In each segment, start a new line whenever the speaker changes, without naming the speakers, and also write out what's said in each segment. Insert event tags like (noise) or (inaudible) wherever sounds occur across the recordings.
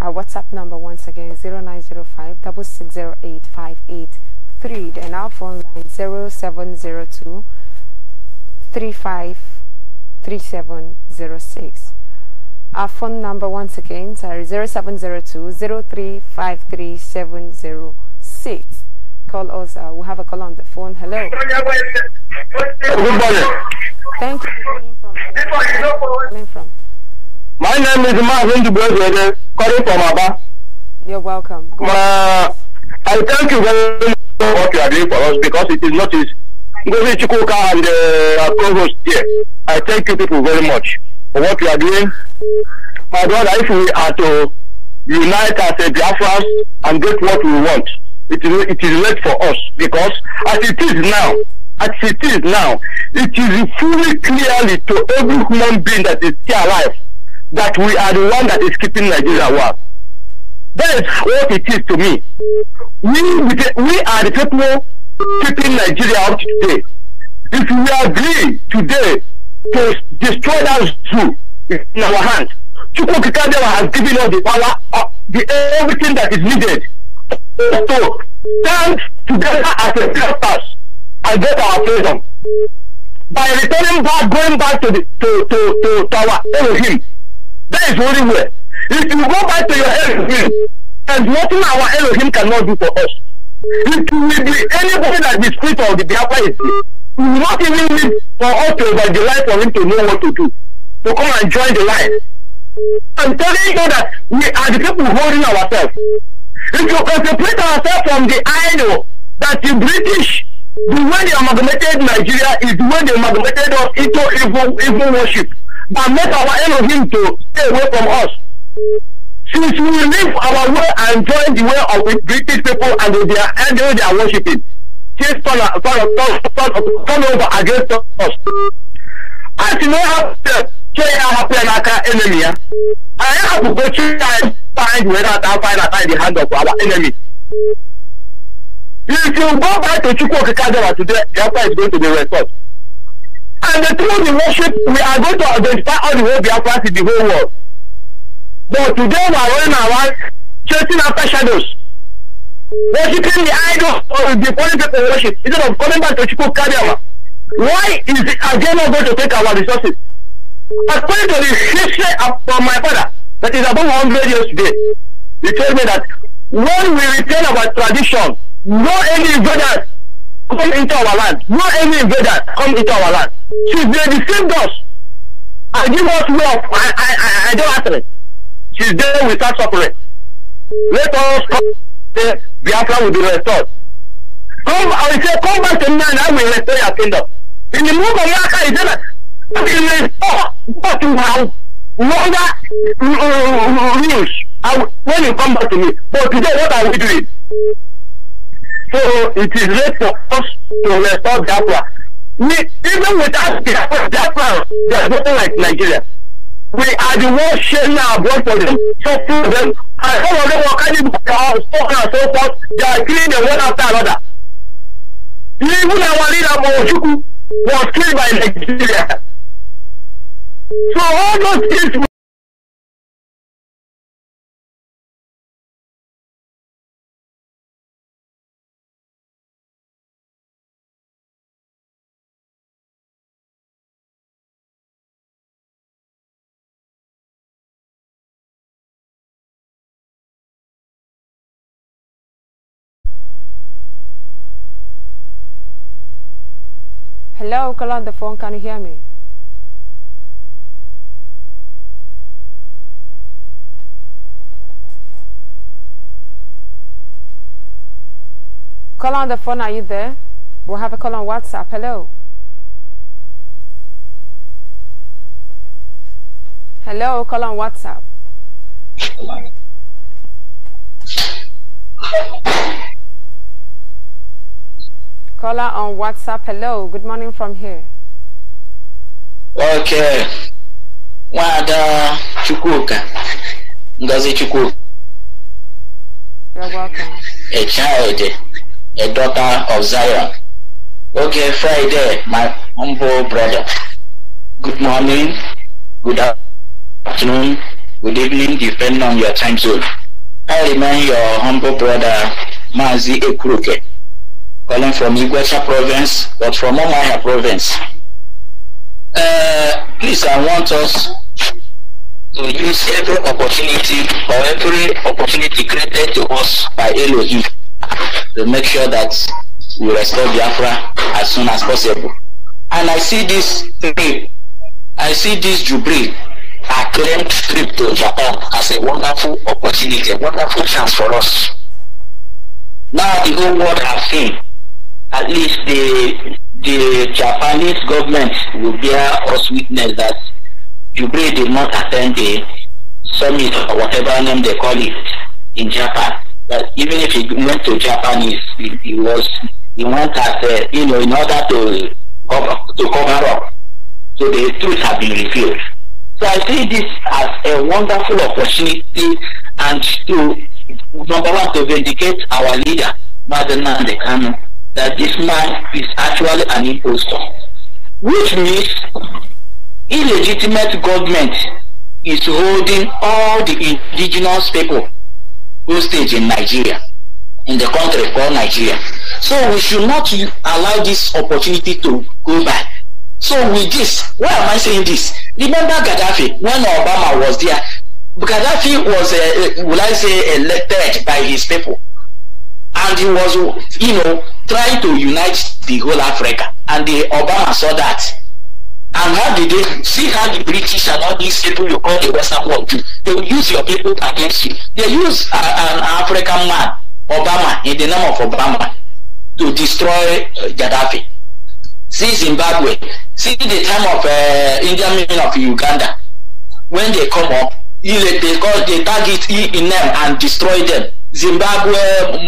Our WhatsApp number once again is 0905 6608583 and our phone line 0702 353706. Our phone number once again sorry 0702 0353706. Call us. Uh, we have a call on the phone. Hello. Good morning. Thank you for calling from. Uh,
calling from.
My name is Marvin Dubrovede, calling from Abba. You're welcome.
Uh, I thank you very much for what you are doing for us because it is not easy. Ngozi Chukwuka and uh, Provost here, I thank you people very much for what you are doing. My brother, if we are to unite as a Biafrans and get what we want, it is, it is late for us because as it is now, as it is now, it is fully clearly to every human being that is still alive that we are the one that is keeping Nigeria warm. That is what it is to me. We, we are the people keeping Nigeria up today. If we agree today to destroy that zoo in our hands, Chukwukikadewa has given us the power, uh, the, everything that is needed. So, stand together as a purpose and get our freedom. By returning back, going back to, the, to, to, to, to our Elohim, that is holy word. If you go back to your Elohim, there's nothing our Elohim cannot do for us. It will be anybody that the spirit of the Biafra is We will not even need for us to evangelize for him to know what to do. To come and join the line. I'm telling you that we are the people holding ourselves. If you separate ourselves from the idol that the British, the way they amalgamated Nigeria is the way they amalgamated us into evil, evil worship. And make our Elohim to stay away from us. Since we live our way and join the way of the British people and they are, and they are worshipping, things turn, turn, turn, turn, turn over against us. As you know, after Chey Ahapianaka enemy, I have to go to and find whether I find that in the hand of our enemy. If you go back to Chukwokikadewa today, the answer is going to be restored. And the through the worship, we are going to identify all the whole Biafrans in the whole world. But today we are running around chasing after shadows, worshiping the idol or the foreign people worship instead of coming back to Chukwu Kadiawa. Why is the agenda going to take our resources? According to the history of, from my father, that is about 100 years today, he told me that when we retain our tradition, no any invaders come into our land. No any invaders come into our land. She's there they deceived us I give us wealth I I, I, I don't answer it. She's there. we start suffering. Let us come the Biafra will be restored. Come, I will say, come back to me and I will restore your kingdom. In the move of Yaka, he said that we will restore what you have longer uh, rules when you come back to me. But today, what are we doing? So it is late for us to restore Biafra. We, even without Biafra, there's nothing like Nigeria. We are the ones sharing our blood for them, suffering them, and some of them are kind of spoken and so forth. They are killing them one after another. Even our leader, Mojuku, was killed by Nigeria. So all those things
Hello, call on the phone. Can you hear me? Call on the phone. Are you there? We'll have a call on WhatsApp. Hello. Hello, call on WhatsApp. Caller on WhatsApp, hello. Good morning from here.
Okay. Wada Chukuka. Ngozi Chukuka. You're welcome. A child, a daughter of Zion. Okay, Friday, my humble brother. Good morning, good afternoon, good evening, depending on your time zone. I remain your humble brother, Mazi Ekuruke. calling from Igwesha province, but from Omaya province. Uh, please, I want us to use every opportunity or every opportunity created to us by Elohim to make sure that we restore Biafra as soon as possible. And I see this trip, I see this Jubilee acclaimed trip to Japan as a wonderful opportunity, a wonderful chance for us. Now the whole world has seen at least the the Japanese government will bear us witness that Jubilee did not attend the summit or whatever name they call it in Japan. But even if he went to Japan, he, he was he went as a, you know in order to cover, to cover up. So the truth has been revealed. So I see this as a wonderful opportunity and to number one to vindicate our leader, Madam Nande Kanu that this man is actually an impostor, which means illegitimate government is holding all the indigenous people hostage in Nigeria, in the country called Nigeria. So we should not allow this opportunity to go back. So with this, why am I saying this? Remember Gaddafi, when Obama was there, Gaddafi was, uh, uh will I say, elected by his people. and he was you know trying to unite the whole Africa and the Obama saw that and how did they see how the British and all these people you call the Western world do they will use your people against you they use a, uh, an African man Obama in the name of Obama to destroy uh, Gaddafi see Zimbabwe see the time of uh, Indian men of Uganda when they come up they, they, call, they target in them and destroy them Zimbabwe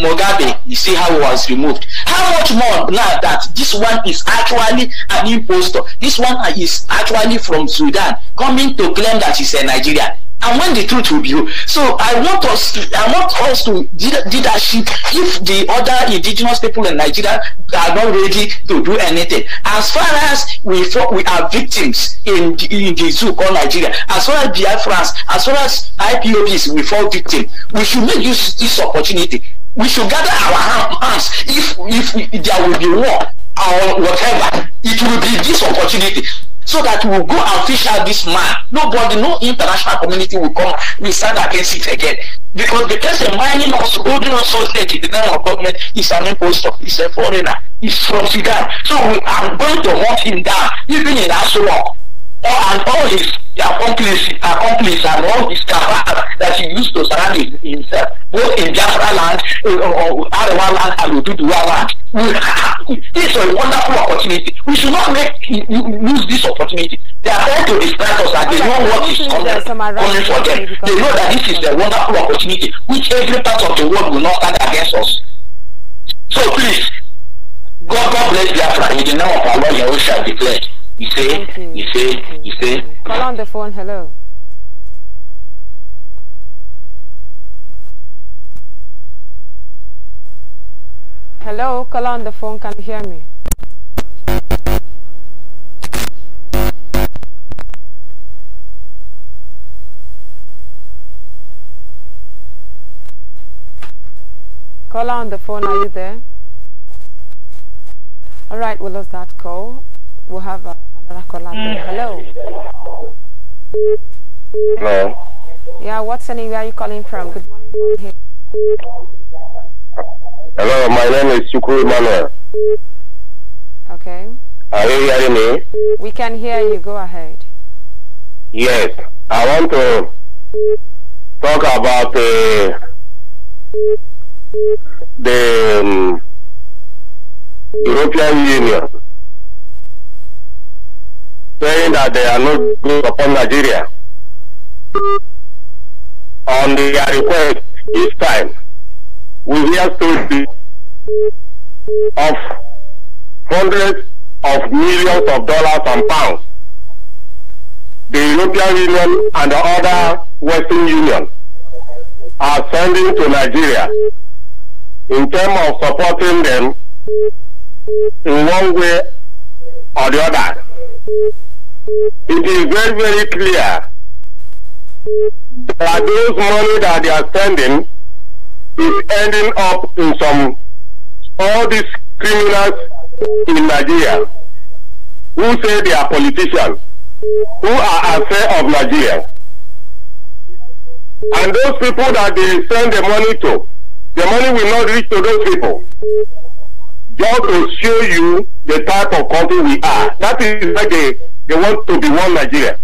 Mugabe, you see how he was removed. How much more now that this one is actually an impostor? This one is actually from Sudan, coming to claim that he's a Nigerian. and when the truth will be real. So I want us, I want us to leadership if the other indigenous people in Nigeria are not ready to do anything. As far as we we are victims in the, in the zoo called Nigeria, as far as Biafrans, as far as IPOBs, we fall victim. We should make use this opportunity. We should gather our hands if if there will be war or whatever. It will be this opportunity so that we go official, this man. Nobody, no international community will come We stand against it again. Because the person mining us, holding us hostage in the name of government is an impostor, He's a foreigner, He's from Sudan. So we are going to hunt him down, even in Asuwa, or and all his the accomplice, accomplice and all this cabal that he used to surround himself, both in Biafra land, uh, eh, Arewa land, and Ududuwa land. We, (laughs) this is a wonderful opportunity. We should not make lose this opportunity. They are trying to distract us and they know what is coming, for them. They know that this is a wonderful opportunity which every part of the world will not stand against us. So please, God, God bless Biafra in the name of our Lord Yahushua declared. You see? You see? You see?
Call on the phone. Hello. Hello, call on the phone. Can you hear me? Call on the phone, are you there? All right, we lost that call. We'll have a Mm. Hello. Hello. Yeah, what's the name? Where are you calling from? Good morning from here.
Hello, my name is Chukwu Manuel. Okay. Are you hearing me?
We can hear you. Go ahead.
Yes, I want to talk about uh, the um, European Union saying that they are not good upon Nigeria. On their uh, request this time, we hear stories of hundreds of millions of dollars and pounds. The European Union and the other Western Union are sending to Nigeria in terms of supporting them in one way or the other it is very, very clear that those money that they are sending is ending up in some, all these criminals in Nigeria who say they are politicians, who are affair of Nigeria. And those people that they send the money to, the money will not reach to those people. Just to show you the type of country we are. That is like a they want to be one Nigeria.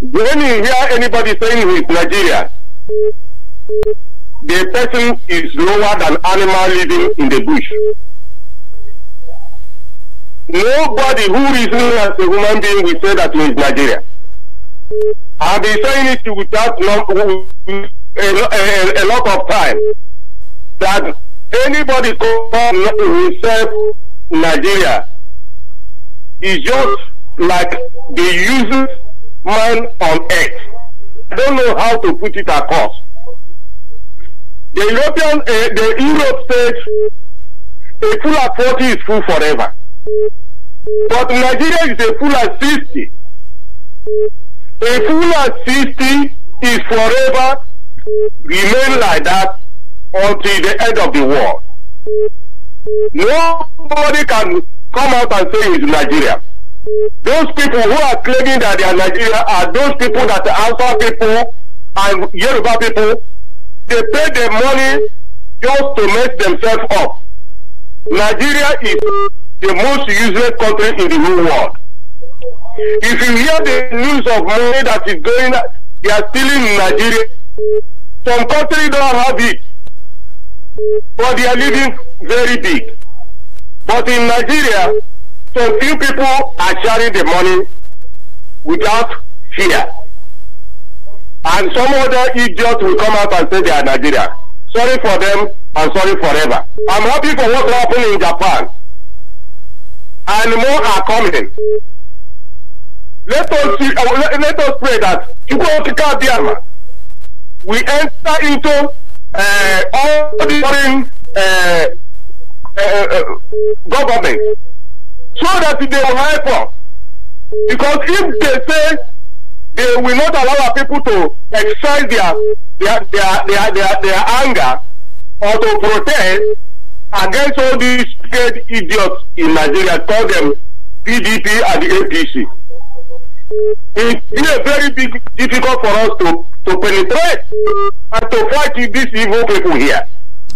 When you hear anybody saying he's Nigeria, the person is lower than animal living in the bush. Nobody who is not as a human being will say that he is Nigeria. I've been saying it without a, a, a lot of time that anybody who himself Nigeria is just like the useless man on earth. I don't know how to put it across. The European, uh, the Europe says a full at 40 is full forever. But Nigeria is a full at 60. A full at 60 is forever remain like that until the end of the world. Nobody can come out and say he's Nigeria. Those people who are claiming that they are Nigeria are those people that are Alpha people and Yoruba people. They pay their money just to make themselves up. Nigeria is the most useless country in the whole world. If you hear the news of money that is going, they are stealing in Nigeria. Some countries don't have it, but they are living very big. But in Nigeria, some few people are sharing the money without fear. And some other idiot will come out and say they are Nigeria. Sorry for them and sorry forever. I'm happy for what happened in Japan. And more are coming. Let us, see, uh, let, let us pray that Chukwuka Biama we enter into uh, all the foreign uh, Eh, eh, eh, government so that they will help us. Because if they say they will not allow our people to express their their, their, their, their, their anger or to protest against all these paid idiots in Nigeria, call them PDP and the APC. It is very big, difficult for us to, to penetrate and to fight these evil people here.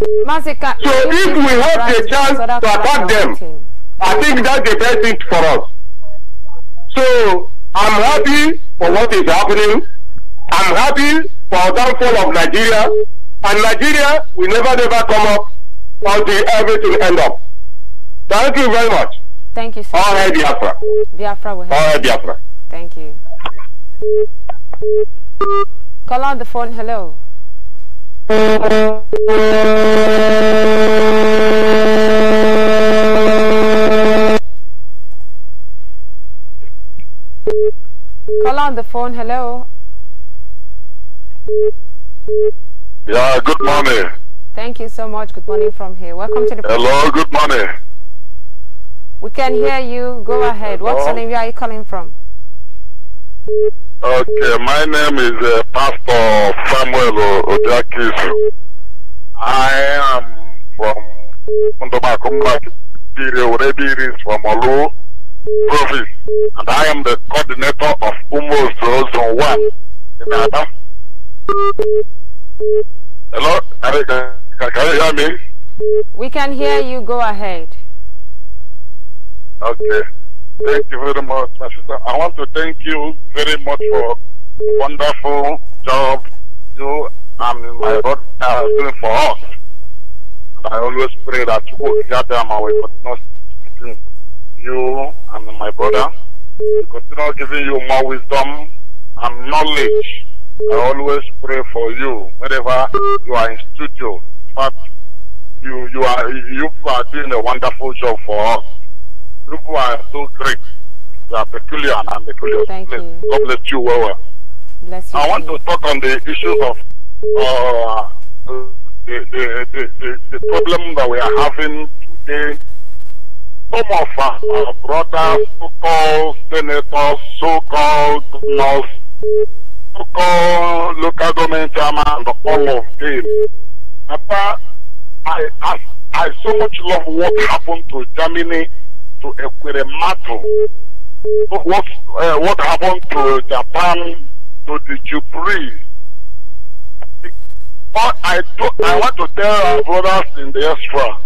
So if we have a chance to attack
them, I think that's the best thing for us. So I'm happy for what is happening. I'm happy for downfall of Nigeria. And Nigeria will never, never come up until everything end up. Thank you very much.
Thank you, sir. All right, Biafra. Biafra will help. All right, Biafra. Thank you. Call on the phone. Hello. Call on the phone, hello.
Yeah, good morning.
Thank you so much. Good morning from here. Welcome to the. Hello, good morning. We can hear you. Go ahead. What's your name? Where are you calling from?
Okay, my name is uh, Pastor Samuel Odiakisu. I am from Kundomakumlaki, Rebiris from Olu province, and I am the coordinator of Umos Zone 1 in Adam. Hello, can, can you hear me?
We can hear you, go ahead.
Okay. Thank you very much, my sister. I want to thank you very much for wonderful job you and my brother are doing for us. And I always pray that you will gather them but not between you and my brother. We continue giving you more wisdom and knowledge. I always pray for you whenever you are in studio. But you you are you are doing a wonderful job for us you are so great. You are peculiar and peculiar. Thank Please, you. God bless you well. well. Bless you. I want to talk on the issues of uh, the, the, the, the, problem that we are having today. Some of our brothers, so-called senators, so-called governors, so-called local government chairman, and all of them. After I, I, I so much love what happened to Germany to matter. What, uh, what happened to Japan, to the Jubilee? But I, do, I want to tell our brothers in the extra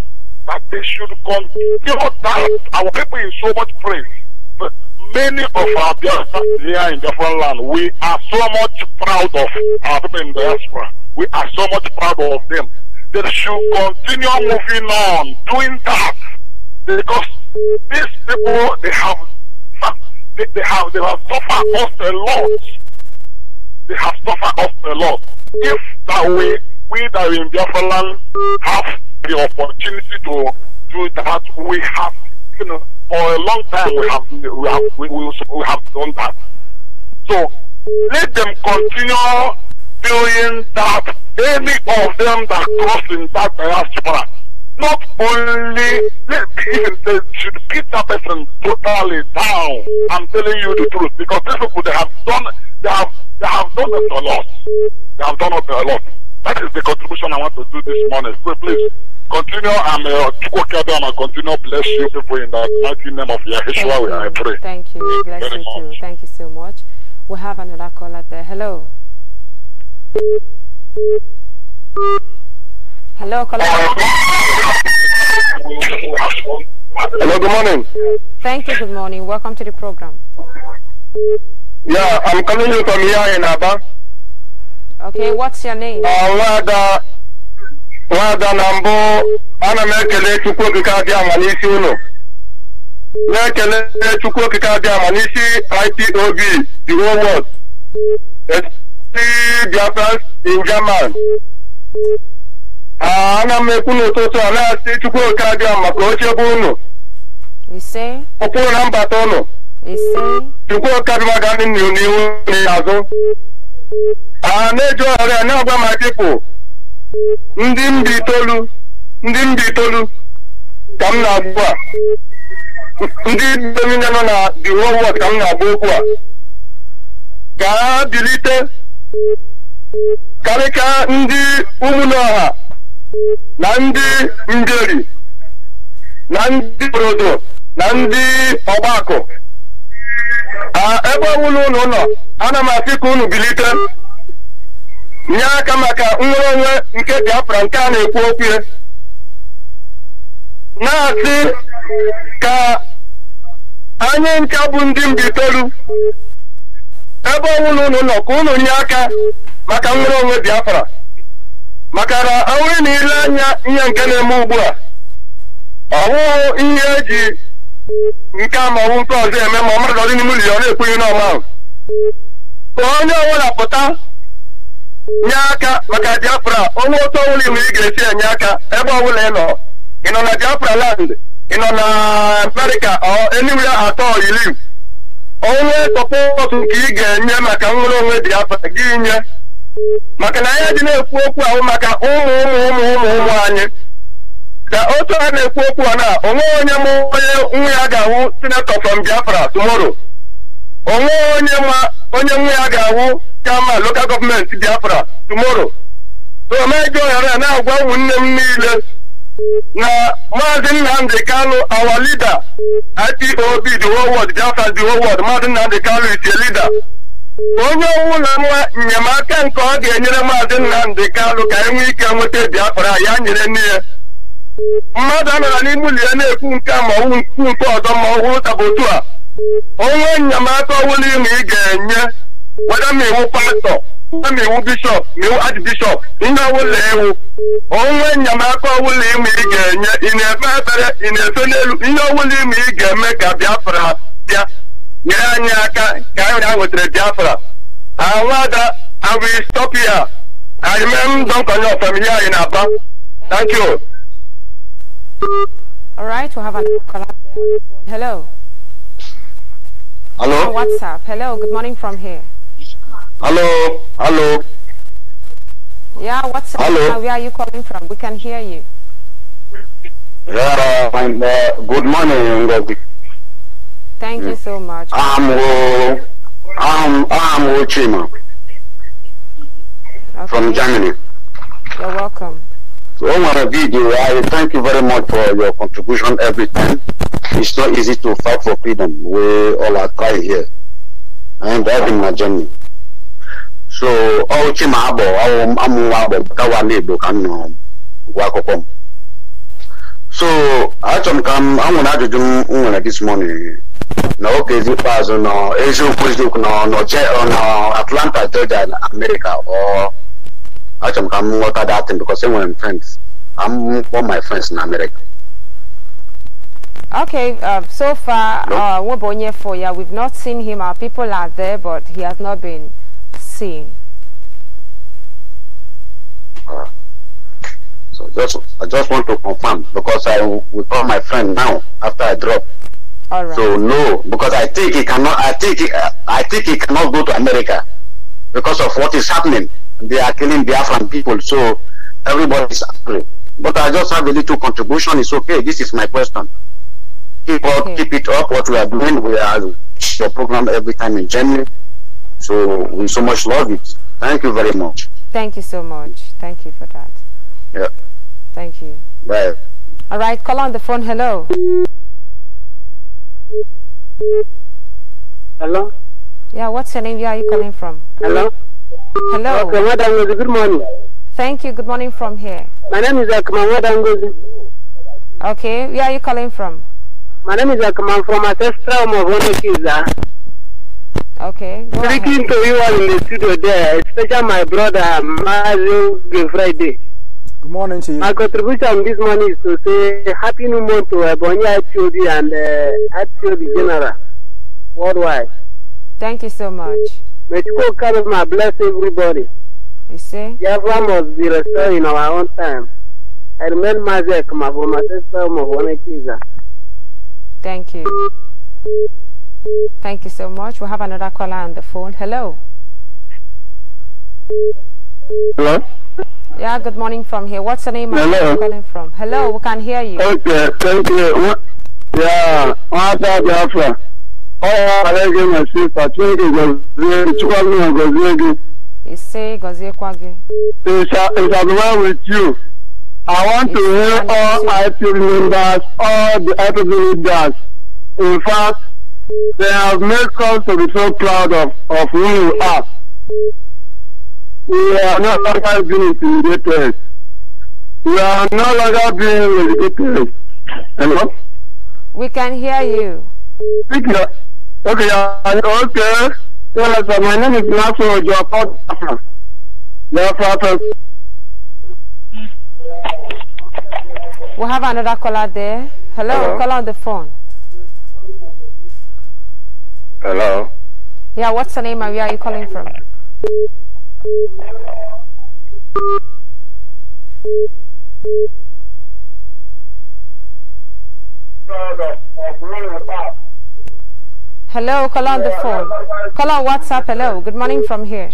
that they should continue that. Our people in so much praise. many of our brothers here in different land, we are so much proud of our people in the diaspora. We are so much proud of them. They should continue moving on, doing that. Because these people, they have, they, they have, they have suffered us a lot. They have suffered us a lot. If that way, we that are in Biafra land have the opportunity to do that, we have, you know, for a long time we have, we have, we, we, we have done that. So let them continue doing that. Any of them that cross in that diaspora, not only let should beat that person totally down. I'm telling you the truth because these people they have done they have they have done a lot. They have done a lot. That is the contribution I want to do this morning. So please continue. I'm uh, and continue bless you people in the mighty name of Yahshua. I pray.
Thank you. Bless Very you much. too. Thank you so much. We have another caller there. Hello. Hello, caller. Hello, good morning. Thank you, good morning. Welcome to the program.
Yeah, I'm calling you from here in Aba.
Okay, what's your name? Alada
uh, Nwada na mbụ ana m ekele Chukwu okike adị ama n'isi ụlọ na-ekele Chukwu okike adị ama n'isi IPOB the whole world the Biafra in German Ah, ana m ekwu n'ụtụtụ a na-asị chukwu oke abịa maka oche bụ unu ụkpụrụ na mbata ụnụ chukwu oke abịa ga ndị nnu n'ihu n'azụ ah, a na-eji ọrịa na-agwa ma dịpụ ndị mba itoolu ndị mba itolu ka m na-agba ndị niile nọ na di whole ka m na-agba okwu a gaa bilite karịka ndị ụmụnọha na ndị ngeri na ndị borodo na ndị ọgbakọ ebe ọbụla ụlọ ụlọ ana m asị ka unu bilite nye aka maka nnwere onwe nke Biafra nke a na-ekwu okwu na-asị ka anyị ncha bụ ndị mbitolu ebe ọbụla ụlọ ụlọ ka unu nye aka maka nnwere onwe Biafra maka na awụrụ na ile anya ihe nke na-eme ugbu a ọ ihe eji nke a maọbụ nke ọzọ eme ma mmadụ ọdị n'ime ụlọ ọ na-ekwughị n'ọma ahụ ka onye ọbụla pụta nye aka maka Biafra onwe otu ọbụla iwu ị ga-esi enye aka ebe ọbụla ị nọ ị nọ na Biafra land ị nọ na America enyiwe atọ iri onwe tọpụ otu nke ị ga-enye maka nwere onwe Biafra gị nye maka na anyị dị na-ekwu okwu ahụ maka ụmụ ụmụ ụmụ ụmụ ụmụ anyị ka otu a na-ekwu okwu a na onweghị onye ma onye nwa ya ga-ahụ sinetọ from Biafra tomoro. onweghị onye ma onye nwa ya ga-ahụ kama local gọọmenti Biafra tomorrow so omego ya, na-agwa ụmụnne m niile na maazị Nnamdị Kanụ awa leader IPOB the whole world Biafra the whole world maazị Nnamdị Kanụ is a onye ọnwụ na nwa enyemaka nke ọ ga-enyere maazị Nnamdị Kalụ ka enwee ike nweta Biafra ya nyere nne ya mmadụ nara n'ime ụlọ ya na-ekwu nke ma ọwụ nkwu nke ọzọ ma ọ hụrụ a onwe enyemaka ọwụla ịma ị ga-enye weda ma iwu pastọ ma iwu bishọp ma iwu ajibishọp ihe ọwụla ewu onwe enyemaka ọwụla ịma ị ga-enye ị na-efe ebere ị na-efe n'elu ihe ọwụla ịma ị ga-eme ka Biafra bịa I will stop here I remember thank you
all right we'll have another caller hello hello oh, what's up hello good morning from here
hello hello
yeah, what's up? Hello. Where are you calling from? We can hear you.
Yeah, uh, good morning, Ngozi.
Thank you so much.
I'm I'm I'm Chima okay. from Germany.
You're welcome.
So Omar Video, I thank you very much for your contribution every time. It's not easy to fight for freedom. We all are crying here. i am been my journey. So, oh, Chima Abo, I'm Wabo, Kawani, Bukan, Wakokom. So, I come, I'm going to do this morning n'oge ikpeazụ nọ eziokwu eziokwu n'Atlanta Georgia na America ọ achọrọ m ka m ghọta datin because enwere m friends I'm all my friends in America.
Okay, uh, so far, no? uh, for we've not seen him. Our people are there, but he has not been seen. Uh,
so just, I just want to confirm because I will call my friend now after I drop. All right. So no, because I think he cannot. I think he, I think he cannot go to America because of what is happening. They are killing the African people. So everybody is angry. But I just have a little contribution. It's okay. This is my question. Keep up, keep it up. What we are doing, we are your program every time in January. So we so much love it. Thank you very much.
Thank you so much. Thank you for that. Yeah. Thank you. Bye. All right, call on the phone. Hello. Hello? Yeah, what's your name? Where are you calling from? Hello? Hello? Okay, madam,
good morning.
Thank you. Good morning from here.
My name is Akman Wadangozi.
Okay, where are you calling from?
My name is Akman from Ancestral Movonokiza. Okay, go Speaking ahead. to you all in the studio there, especially my brother, Mazu Friday. Good morning to you. My contribution this morning is to say
Happy New Month to Ebony HOD and uh, HOD General worldwide. Thank you so much. May Chukwu Karima bless everybody. You see?
Biafra must be restored in our own time. I remain Mazek my sister Mavonekiza.
Thank you. Thank you so much. We have another caller on the phone. Hello. Hello? Yeah, good morning from here. What's the name Hello. calling from? Hello, we can hear you.
Okay, thank you. Yeah, what's up, Biafra? Oh, I like my sister. Thank you, Gozie. Chukwagi and Gozie. You
You say Gozie Kwagi.
It shall be well with you. I want it's to hear all active members, all the active leaders. In fact, they have made us to be so proud of, of who you are. We are no longer being intimidated. We are no longer being intimidated. Hello?
We can hear you. Okay,
okay. okay. Well, so my name is Nasu Ojapot. We have another
caller there. Hello, Hello? caller on the phone. Hello. Yeah, what's your name and where are you calling from? Hello, call on the phone. Call on WhatsApp. Hello, good morning from here.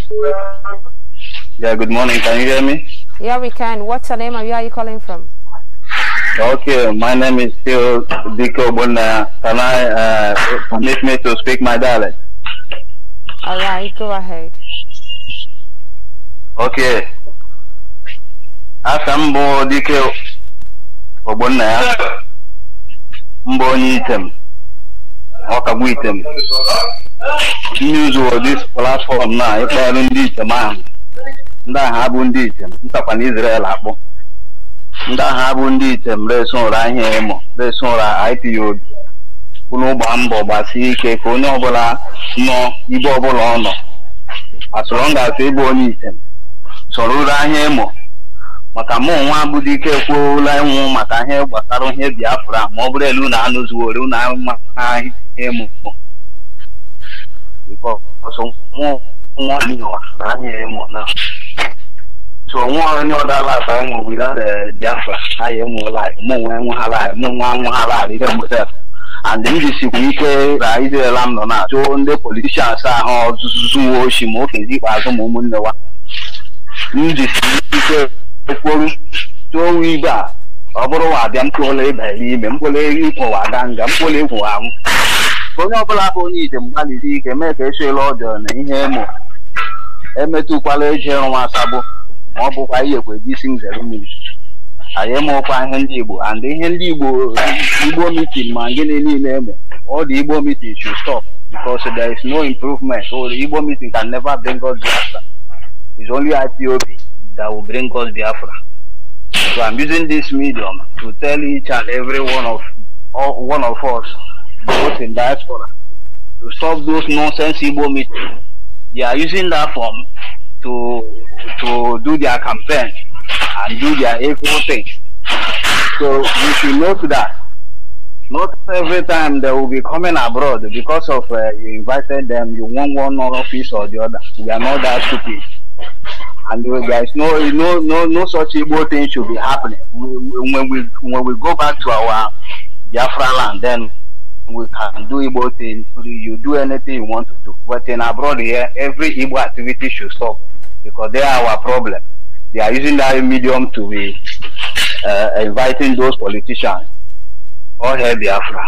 Yeah, good morning. Can you hear me?
Yeah, we can. What's your name and where are you calling from?
Okay, my name is still Diko Buna. Can I uh, permit me to speak my dialect?
All right, go ahead.
oke asa m bụ dike ogbonna ya mbụ onye item ọkagbu item n'izu dis platform na ịkpọrọ ndị item ahụ ndị agha bụ ndị item ntakwa na Israel akpụ, ndị agha bụ ndị item resi ụra ahịa emo resi ụra ipod unu gbaa mbọ gbasie ike ka onye ọbụla nọ ibe ọbụla ọ nọ as long as ịbụ onye item sọrọ ụra ahịa ịmụ maka mụ onwe abụdị ike kwuola ịnwụ maka ihe gbasara ihe biafra ma ọ bụrụ elu na anụ na ahịa ịmụ ịmụ ahịa mụ ike ra izrela m nọ na ndị politishan ahụ zuwo oshi ma okezi ikpeazụ ma ụmụnne wa m jisi ike kwuru tụọ ibe a ọ bụrụ wa abịa mkpụrụ ịba ime mkpụrụ ịkwụwa aga nga mkpụrụ ịkwụwa anwụ onye ọbụla bụ onye ije mgbalịsi ike mee ka echela ọjọọ na ihe ịmụ e emetụkwala eji nwa asabụ ma ọ bụkwa iyekwa eji isi nzere mmiri anyị emụkwa ihe ndị igbo and ihe ndị igbo igbo mitin ma gịnị niile eme ọ dị igbo mitin should stop because there is no improvement or igbo mitin can never bring us disaster It's only IPOB that will bring us Biafra. So I'm using this medium to tell each and every one of all, one of us, both in diaspora, to stop those nonsense Igbo meetings. They are using that form to to do their campaign and do their evil thing. So we should note that. Not every time they will be coming abroad because of uh, you invited them, you want one office or the other. We are not that stupid and there uh, is no no no no such evil thing should be happening. We, when we when we go back to our Biafra land, then we can do evil thing. You do anything you want to do. But in abroad here, every evil activity should stop because they are our problem. They are using that medium to be uh, inviting those politicians. All hail Biafra.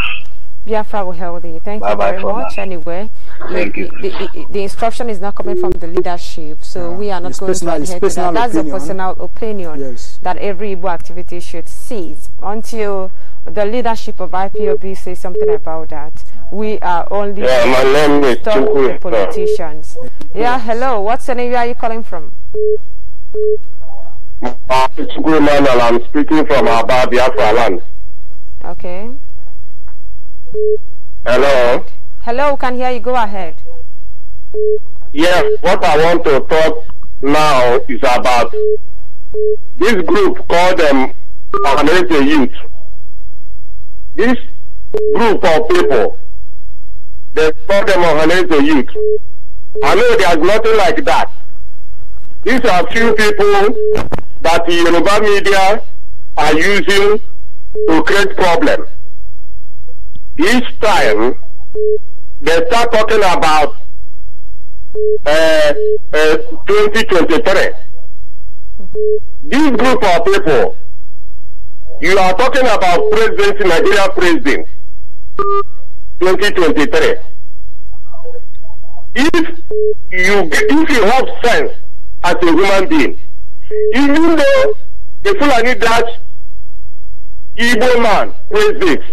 Biafra will help you. Thank bye you very much. Now. Anyway
the,
the, instruction is not coming from the leadership, so yeah. we are not it's going personal, to adhere to that. That's a personal opinion yes. that every Igbo activity should cease until the leadership of IPOB says something about that. We are only yeah, my name is Chukwe, politicians. Yeah, hello. What's the name? Where are you calling from?
I'm speaking from Abba, Biafra land. Okay. Hello.
Hello, can hear you. Go ahead.
Yes, what I want to talk now is about this group called um, American Youth. This group of people, they call them American Youth. I know there's nothing like that. These are few people that the Yoruba media are using to create problems. Each time they start talking about uh, uh, 2023. This group of people, you are talking about President Nigeria president, 2023. If you, if you have sense as a human being, you know the Fulani Dutch Igbo man president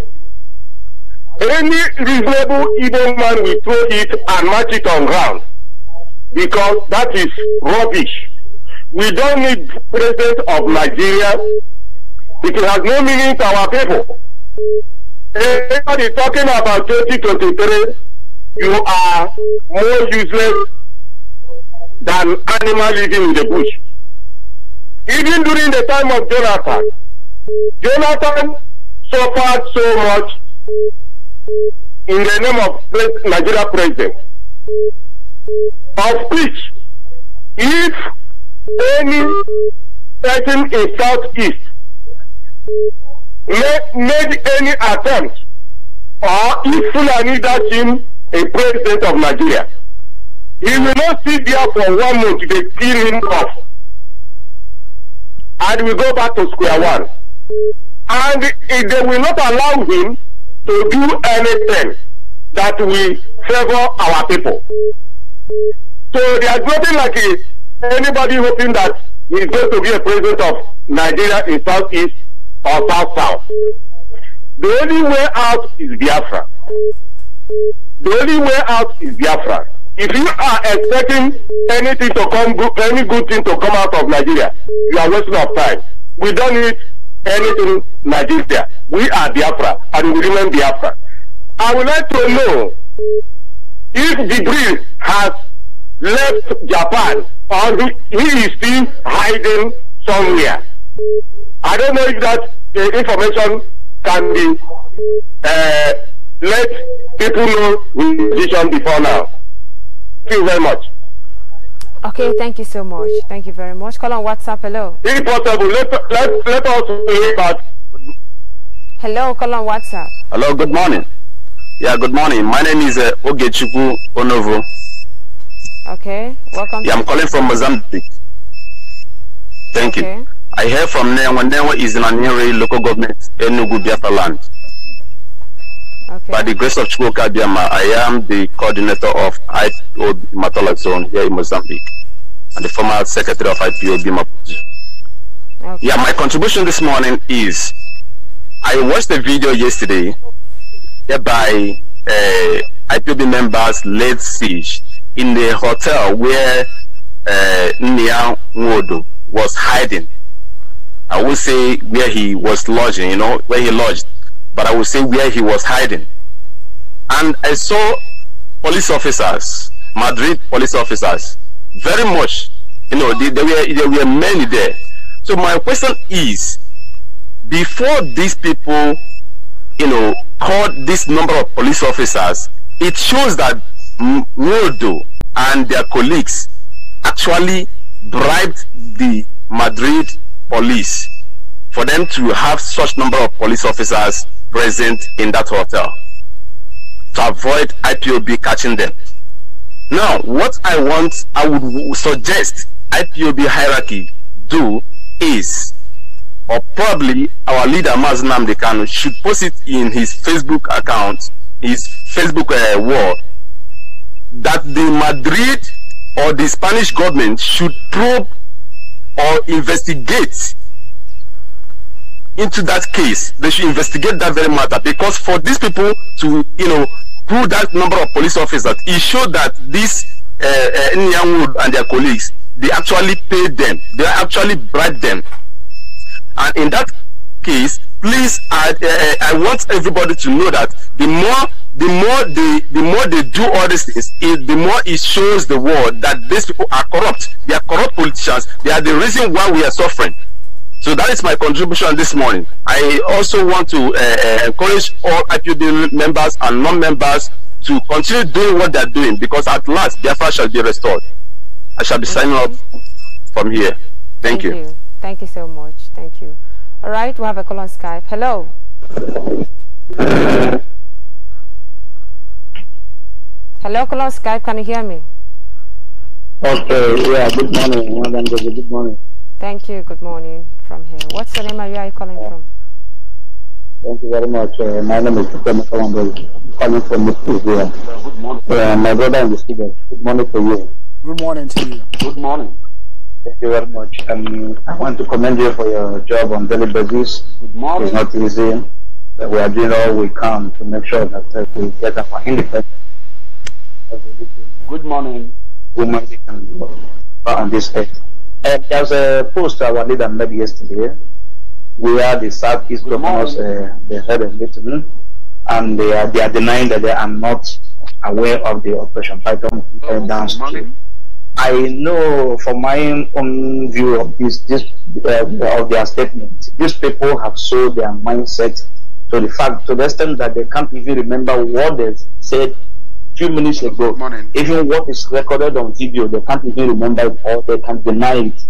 any reasonable Igbo man will throw it and match it on ground because that is rubbish. We don't need president of Nigeria. It has no meaning to our people. Everybody talking about 2023, you are more useless than animal living in the bush. Even during the time of Jonathan, Jonathan suffered so much in the name of Nigeria president, of which if any person in Southeast made any attempt or if Fulani that him a president of Nigeria, he will not sit there for one month, they kill him off. And we go back to square one. And they will not allow him to do anything that will favor our people. So there is nothing like it. anybody hoping that he's going to be a president of Nigeria in Southeast or South South. The only way out is Biafra. The only way out is Biafra. If you are expecting anything to come, any good thing to come out of Nigeria, you are wasting your time. We don't need anything Nigeria. We are Biafra and we remain Biafra. I would like to know if the Jibril has left Japan or he is still hiding somewhere. I don't know if that uh, information can be uh, let people know the position before now. Thank you very much.
Okay, thank you so much. Thank you very much. Call on WhatsApp. Hello.
Impossible. let, let, let us hear
Hello, call on WhatsApp.
Hello, good morning. Yeah, good morning. My name is uh, Ogechuku Onovo.
Okay, welcome. Yeah,
I'm calling from Mozambique. Thank okay. you. I hear from Nenwa. Nenwa is in a nearby local government, Enugu, Biafra land. By the grace of Chukwuka Biama, I am the coordinator of IPOB Matola Zone here in Mozambique and the former secretary of IPOB Maputo. Okay. Yeah, my contribution this morning is I watched a video yesterday by uh, IPOB members laid siege in the hotel where uh, Nia was hiding. I would say where he was lodging, you know, where he lodged but I will say where he was hiding. And I saw police officers, Madrid police officers, very much, you know, there were, there were many there. So my question is, before these people, you know, called this number of police officers, it shows that Waldo and their colleagues actually bribed the Madrid police for them to have such number of police officers present in that hotel to avoid IPOB catching them. Now, what I want, I would suggest IPOB hierarchy do is, or probably our leader Mazinam Dekano should post it in his Facebook account, his Facebook uh, wall, that the Madrid or the Spanish government should probe or investigate into that case. They should investigate that very matter because for these people to, you know, through that number of police officers, it showed that these uh, uh, and their colleagues, they actually paid them. They actually bribed them. And in that case, please, I, uh, uh, I want everybody to know that the more the more they the more they do all these things it, the more it shows the world that these people are corrupt they are corrupt politicians they are the reason why we are suffering so that is my contribution this morning. I also want to uh, uh encourage all IPB members and non-members to continue doing what they're doing because at last Biafra shall be restored. I shall be signing off from here. Thank, Thank you.
you. Thank you so much. Thank you. All right, we have a call on Skype. Hello. Hello, call on Skype. Can you hear me?
Okay, yeah, good morning, Madam Good morning.
Thank you. Good morning from here. What's the name of where are you calling from?
Thank you very much. Uh, my name is Mr. Mokawambo, calling from Mr. Uh, my brother and the Good morning to you.
Good morning to you. Good morning.
Thank you very much. Um, I want to commend you for your job on daily basis.
Good morning. It's not easy.
But we are doing all we can to make sure that uh, we get our independence. Good morning. Good can do uh, on this earth. Uh, there was a post our leader made yesterday where the Southeast governors, uh, they had eh, a meeting and they are, they are denying that they are not aware of the Operation Python uh, downstream. I know from my own view of this, this uh, of their statement, these people have sold their mindset to the fact to the extent that they can't even remember what they said few minutes ago, Morning. even what is recorded on video, they can't even remember it or they can deny it.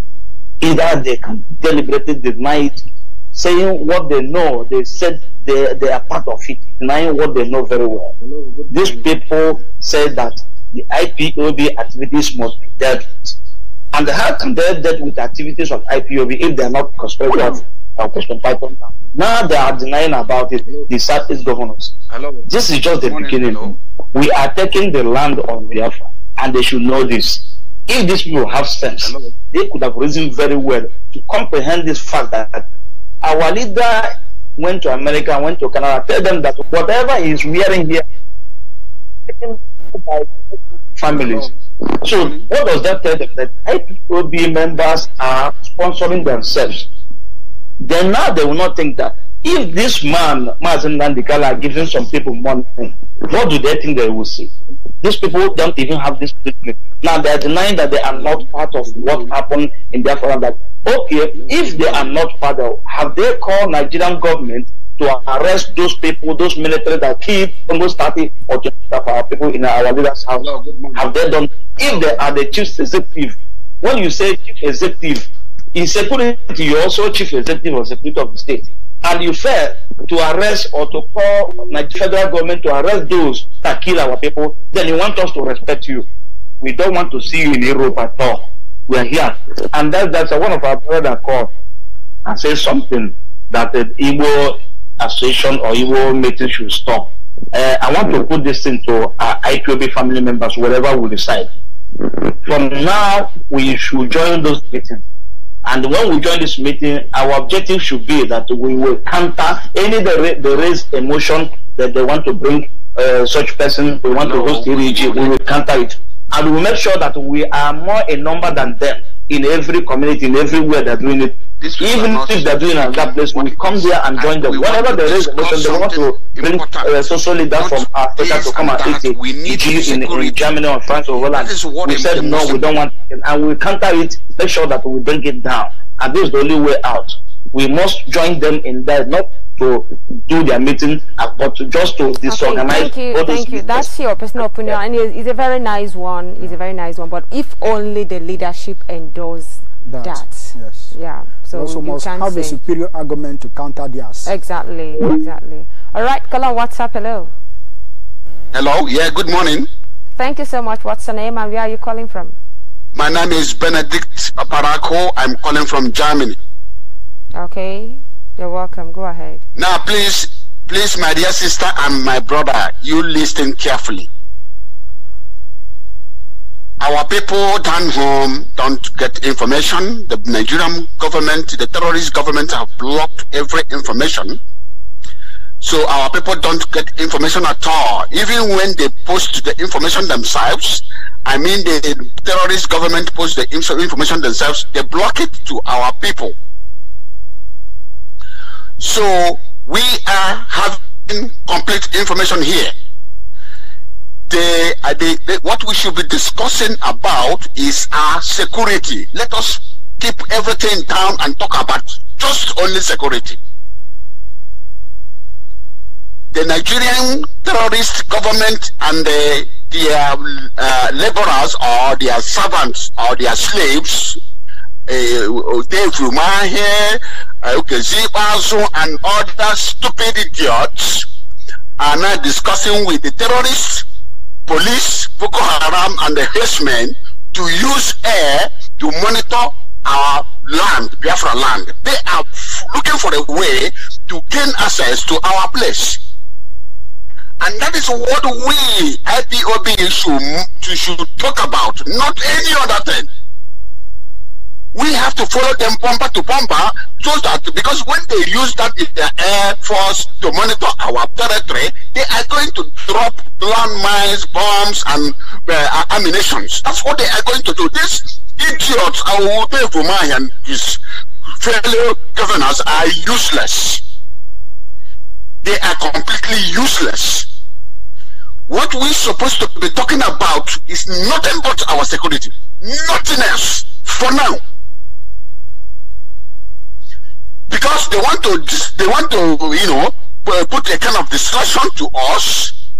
Either they can deliberately deny it, saying what they know, they said they, they are part of it, denying what they know very well. Hello, These people say that the IPOB activities must be dealt with. And how can they deal with activities of IPOB if they are not conspicuous? Now they are denying about it, the Southeast governors. Hello. This is just the Morning. beginning. Hello. We are taking the land of Biafra, and they should know this. If these people have sense, they could have reasoned very well to comprehend this fact that our leader went to America, went to Canada, tell them that whatever he is wearing here, families. So what does that tell them? That IPOB members are sponsoring themselves. Then now they will not think that if this man, Mazen Nandikala, giving some people money, what do they think they will see? These people don't even have this treatment. Now they are denying that they are not part of what happened in their father. Okay, if they are not part of, have they called Nigerian government to arrest those people, those military that keep almost 30 or 20 of our people in our leaders' house? have they done? If they are the chief executive, when you say chief executive, in security, you're also chief executive or secretary of the state and you fail to arrest or to call the federal government to arrest those that kill our people, then you want us to respect you. We don't want to see you in Europe at all. We are here. And that, that's one of our brother called and said something that the Igbo association or Igbo meeting should stop. Uh, I want to put this into our IPOB family members, Whatever we decide. From now, we should join those meetings and when we join this meeting, our objective should be that we will counter any the, the raised emotion that they want to bring uh, such person, we want no, to host ERG, we will counter it. And we will make sure that we are more a number than them in every community, in everywhere that we need even if they're doing an that place, we come there and join them. Whatever there is, listen, they want to bring uh, social leader from Africa to come and eat it. We need in, in Germany or France or Holland. We said no, we don't want it, and we counter it. Make sure that we bring it down, and this is the only way out. We must join them in that, not to do their meeting, uh, but to just to disorganize. Okay, thank you, thank you. That's
your personal opinion, yeah. and it's, it's, a very nice one. It's a very nice one, but if only the leadership endorses that, that Yes. Yeah. So also must have say. a
superior argument to counter theirs.
Exactly. Exactly. All right, color. What's up, Hello.
Hello. Yeah. Good morning.
Thank you so much. What's your name and where are you calling from?
My name is Benedict Paparako. I'm calling from Germany.
Okay. You're welcome. Go ahead.
Now, please, please, my dear sister and my brother, you listen carefully. Our people down home don't get information. The Nigerian government, the terrorist government have blocked every information. So our people don't get information at all. Even when they post the information themselves, I mean the terrorist government post the information themselves, they block it to our people. So we are having complete information here what we should be discussing about is our security. Let us keep everything down and talk about just only security. The Nigerian terrorist government and the, their um, uh, laborers or their servants or their slaves, uh, Dave Rumahe, uh, okay, and other stupid idiots are now discussing with the terrorists police, Boko Haram, and the herdsmen to use air to monitor our land, Biafra land. They are looking for a way to gain access to our place. And that is what we, IPOB, should, should talk about, not any other thing. we have to follow them bumper to bumper so that because when they use that in their air force to monitor our territory, they are going to drop landmines, bombs, and uh, ammunitions. That's what they are going to do. These idiots, Awude Vumai and his fellow governors are useless. They are completely useless. What we're supposed to be talking about is nothing but our security. Nothing else. For now because they want to they want to you know uh, put a kind of distraction to us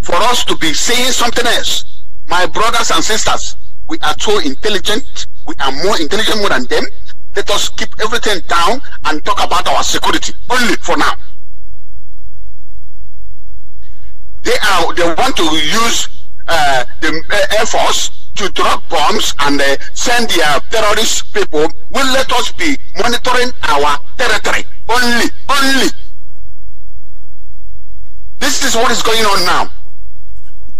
for us to be saying something else. My brothers and sisters, we are so intelligent. We are more intelligent more than them. Let us keep everything down and talk about our security only for now. They are they want to use uh, the uh, Air Force to drop bombs and uh, send their terrorist people will let us be monitoring our territory only, only. This is what is going on now.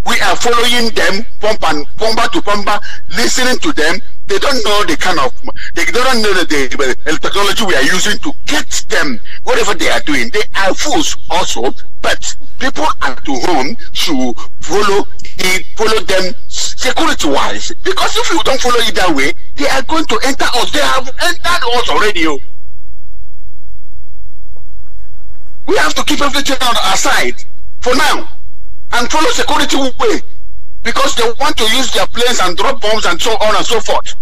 We are following them, pump and pumper to pumper, listening to them. They don't know the kind of, they don't know the, the technology we are using to get them whatever they are doing. They are fools also, but people at home should follow he follow them security wise because if you don't follow it that way they are going to enter us they have entered us already o oh. we have to keep everything on our side for now and follow security way because they want to use their planes and drop bombs and so on and so forth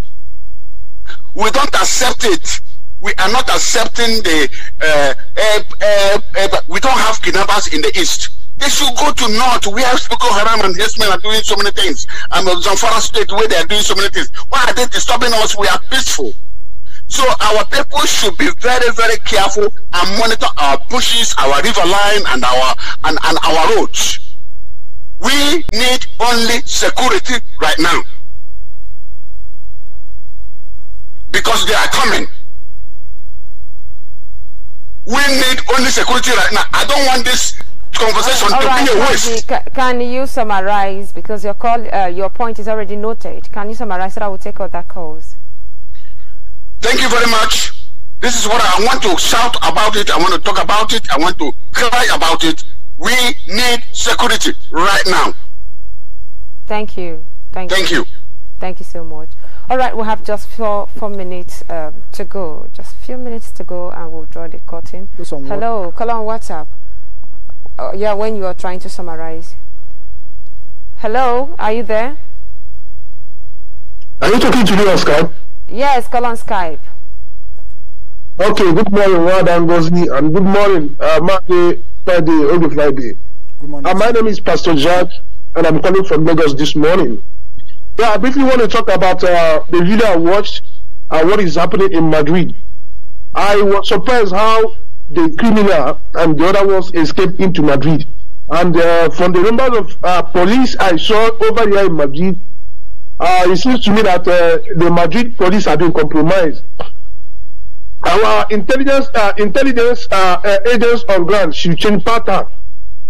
we don't accept it we are not accepting the uh, uh, uh, uh, we don't have kidnappers in the east They should go to North We have Boko Haram and his men are doing so many things. And Zamfara State where they are doing so many things. Why are they disturbing us? We are peaceful. So our people should be very, very careful and monitor our bushes, our river line, and our and, and our roads. We need only security right now. Because they are coming. We need only security right now. I don't want this conversation uh, to right, be a waste.
Can, you summarize, because your, call, uh, your point is already noted, can you summarize so that I will take out that calls?
Thank you very much. This is what I want to shout about it. I want to talk about it. I want to cry about it. We need security right now.
Thank you. Thank, Thank you. you. Thank you so much. All right, we have just four, four minutes um, to go. Just a few minutes to go and we'll draw the curtain. Hello, call on WhatsApp uh, yeah, when you are trying to summarize. Hello, are you there? Are you talking to me on Skype? Yes, call on Skype.
Okay, good morning, Wad and good morning, uh, Monday, Friday, Ogu Friday. Good morning. Uh, my name is Pastor Jack, and I'm calling from Lagos this morning. Yeah, I briefly want to talk about uh, the video I watched and uh, what is happening in Madrid. I was surprised how the criminal, and the other ones escaped into Madrid. And uh, from the numbers of uh, police I saw over here in Madrid, uh, it seems to me that uh, the Madrid police have been compromised. Our intelligence uh, intelligence uh, agents on ground should change pattern.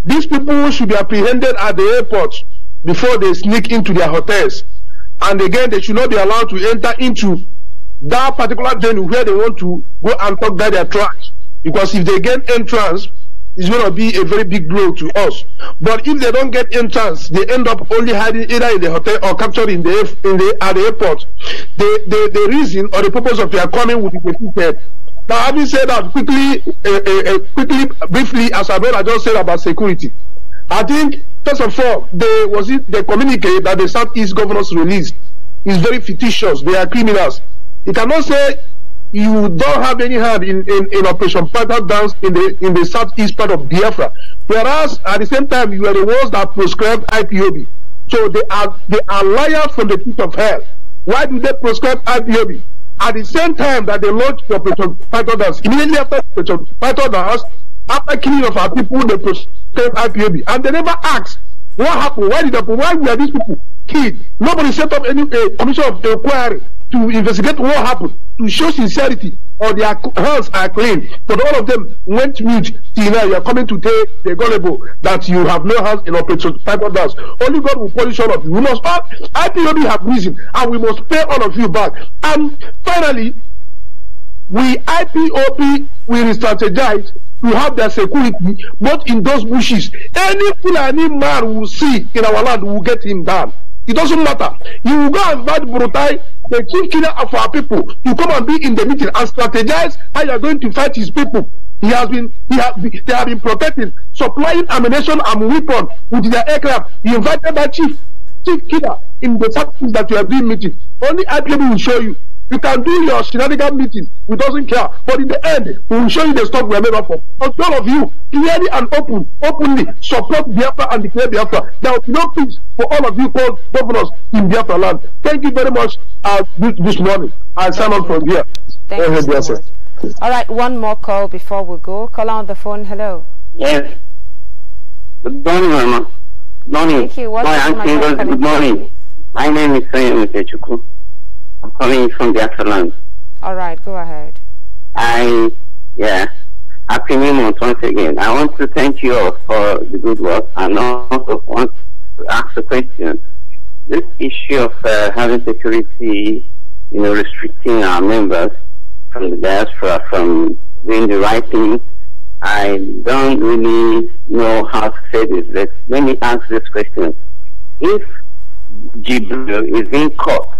These people should be apprehended at the airport before they sneak into their hotels. And again, they should not be allowed to enter into that particular venue where they want to go and talk about their tracks. Because if they get entrance, it's going to be a very big blow to us. But if they don't get entrance, they end up only hiding either in the hotel or captured in the, in the at the airport. The, the, the reason or the purpose of their coming would be defeated. Now, having said that, quickly, uh, uh, quickly, briefly, as I just said about security, I think first of all, they was it the communique that the Southeast governors released is very fictitious. They are criminals. You cannot say you don't have any hand in, in, in Operation Panther Dance in the in the southeast part of Biafra. Whereas at the same time you are the ones that prescribed IPOB. So they are they are liars from the pit of hell. Why do they prescribe IPOB? At the same time that they launched Operation Panther Dance, immediately after Operation Panther Dance, after killing of our people, they prescribe IPOB. And they never asked what happened, why did that why were these people killed? Nobody set up any uh, commission of inquiry to investigate what happened, to show sincerity, or their hands are clean. But all of them went mute till now. You are coming to tell the gullible that you have no hands in operation Bible dance. Only God will punish all of you. We must all IPOB have reason, and we must pay all of you back. And finally, we IPOP will strategize to have their security, but in those bushes, any fool, any man will see in our land will get him down. It doesn't matter. You will go and fight Brutai the chief killer of our people to come and be in the meeting and strategize how you are going to fight his people. He has been, he has, they have been protecting, supplying ammunition and weapon with their aircraft. He invited that chief, chief killer in the service that you are doing meeting. Only I will show you you can do your shenanigan meeting. We doesn't care. But in the end, we will show you the stuff we are made up of. But all of you, clearly and open, openly support Biafra and declare Biafra. There will be no peace for all of you called governors in Biafra land. Thank you very much uh, this morning. I sign off from here. Thank you. So much.
All right, one more call before we go. Call on the phone. Hello.
Yes. Good morning, Mama.
Good morning. Thank you. my, my good
morning. My name is Sonia Mutechukwu. I'm from the salon.
All right, go ahead.
I, yeah, happy new month once again. I want to thank you all for the good work and also want to ask a question. This issue of uh, having security, you know, restricting our members from the diaspora from doing the right thing, I don't really know how to say this. Let, let me ask this question. If Jibril is being caught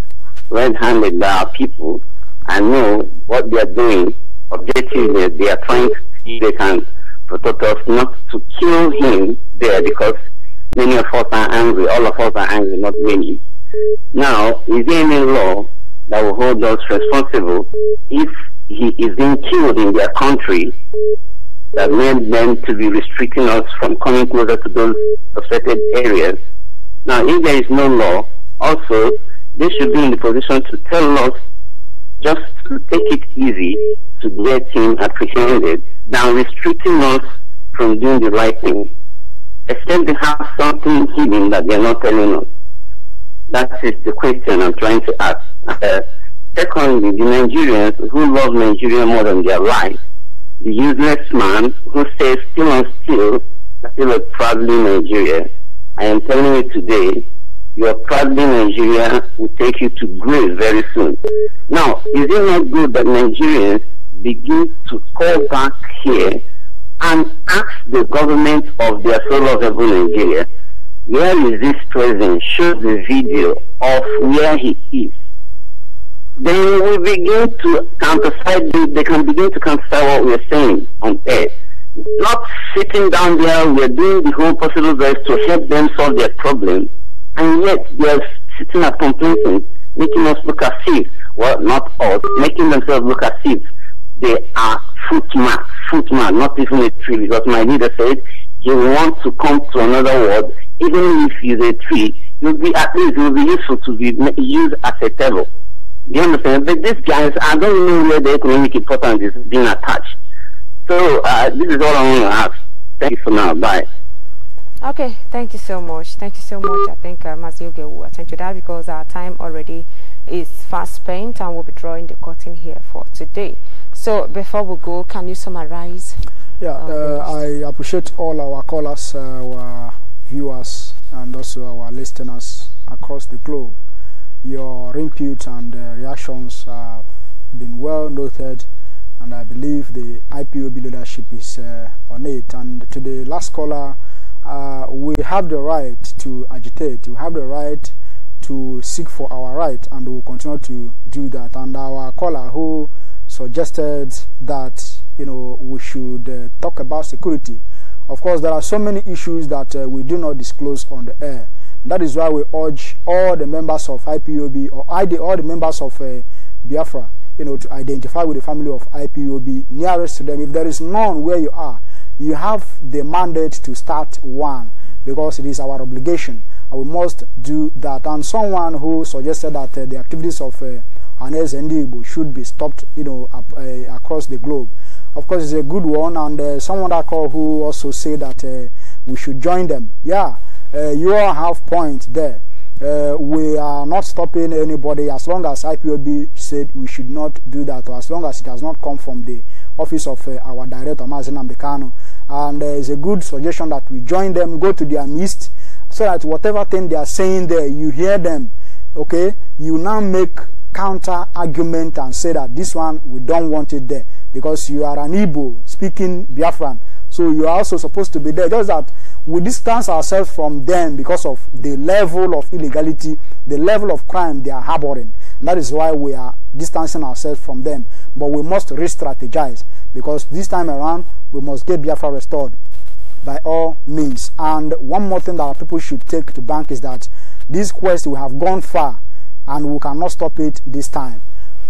red-handed by our people and know what they are doing. Objectively, they are trying to see they can protect us not to kill him there because many of us are angry. All of us are angry, not many. Now, is there any law that will hold us responsible if he is being killed in their country that meant them to be restricting us from coming closer to those affected areas? Now, if there is no law, also they should be in the position to tell us just to take it easy to get him apprehended than restricting us from doing the right thing. Except they have something hidden that they're not telling us. That is the question I'm trying to ask. Uh, secondly, the Nigerians who love Nigeria more than their life, the useless man who says still and still, still a proudly Nigeria. I am telling you today, your traveling Nigeria will take you to grave very soon. Now, is it not good that Nigerians begin to call back here and ask the government of their fellow people Nigeria, where is this president? Show the video of where he is. Then we begin to counterfeit, they can begin to counterfeit what we're saying on air not sitting down there, we are doing the whole possible best to help them solve their problem and yet they're sitting at complacent, making us look as if, well, not us, making themselves look as if they are footman, footman, not even a tree, because my leader said, you want to come to another world, even if you're a tree, you'll be at least you'll be useful to be used as a table. You understand? But these guys, I don't know where the economic importance is being attached. So uh, this is all I want to ask. Thank you for now. Bye.
Okay, thank you so much. Thank you so much. I think uh, Mazioge will attend to that because our time already is fast spent and we'll be drawing the curtain here for today. So before we go, can you summarize? Yeah, um, uh,
I appreciate all our callers, uh, our viewers, and also our listeners across the globe. Your input and uh, reactions have been well noted, and I believe the IPOB leadership is uh, on it. And to the last caller, uh, we have the right to agitate, we have the right to seek for our right, and we will continue to do that. And our caller who suggested that you know we should uh, talk about security. Of course, there are so many issues that uh, we do not disclose on the air. That is why we urge all the members of IPOB or ID, all the members of uh, Biafra, you know, to identify with the family of IPOB nearest to them. If there is none where you are, you have the mandate to start one because it is our obligation and we must do that and someone who suggested that uh, the activities of uh, Anes should be stopped you know up, uh, across the globe of course it's a good one and uh, someone I call who also said that uh, we should join them yeah uh, you all have points there uh, we are not stopping anybody as long as IPOB said we should not do that or as long as it has not come from the office of uh, our director, Mazen Ambekano. And uh, it's a good suggestion that we join them, go to their midst, so that whatever thing they are saying there, you hear them. Okay? You now make counter argument and say that this one, we don't want it there. Because you are an Igbo speaking Biafran. So you are also supposed to be there. Just that we distance ourselves from them because of the level of illegality, the level of crime they are harboring. And that is why we are distancing ourselves from them. But we must re strategize because this time around we must get Biafra restored by all means. And one more thing that our people should take to bank is that this quest we have gone far and we cannot stop it this time.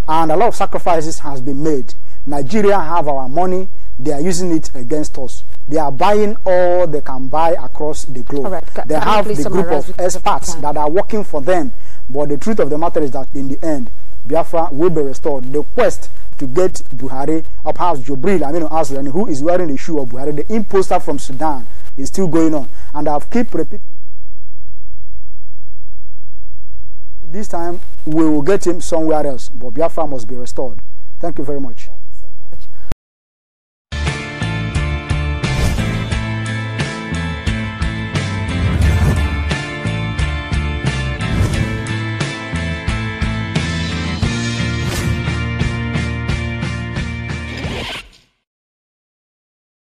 And a lot of sacrifices has been made. Nigeria have our money, they are using it against us. They are buying all they can buy across the globe. Right. They have the group of experts that are working for them. But the truth of the matter is that in the end, Biafra will be restored. The quest to get Buhari or perhaps Jobril I mean, Aslan, who is wearing the shoe of Buhari, the imposter from Sudan, is still going on. And I've keep repeating. This time we will get him somewhere else, but Biafra must be restored. Thank you very much.